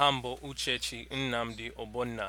Aha m bụ Uchechi Nnamdi Ogbonna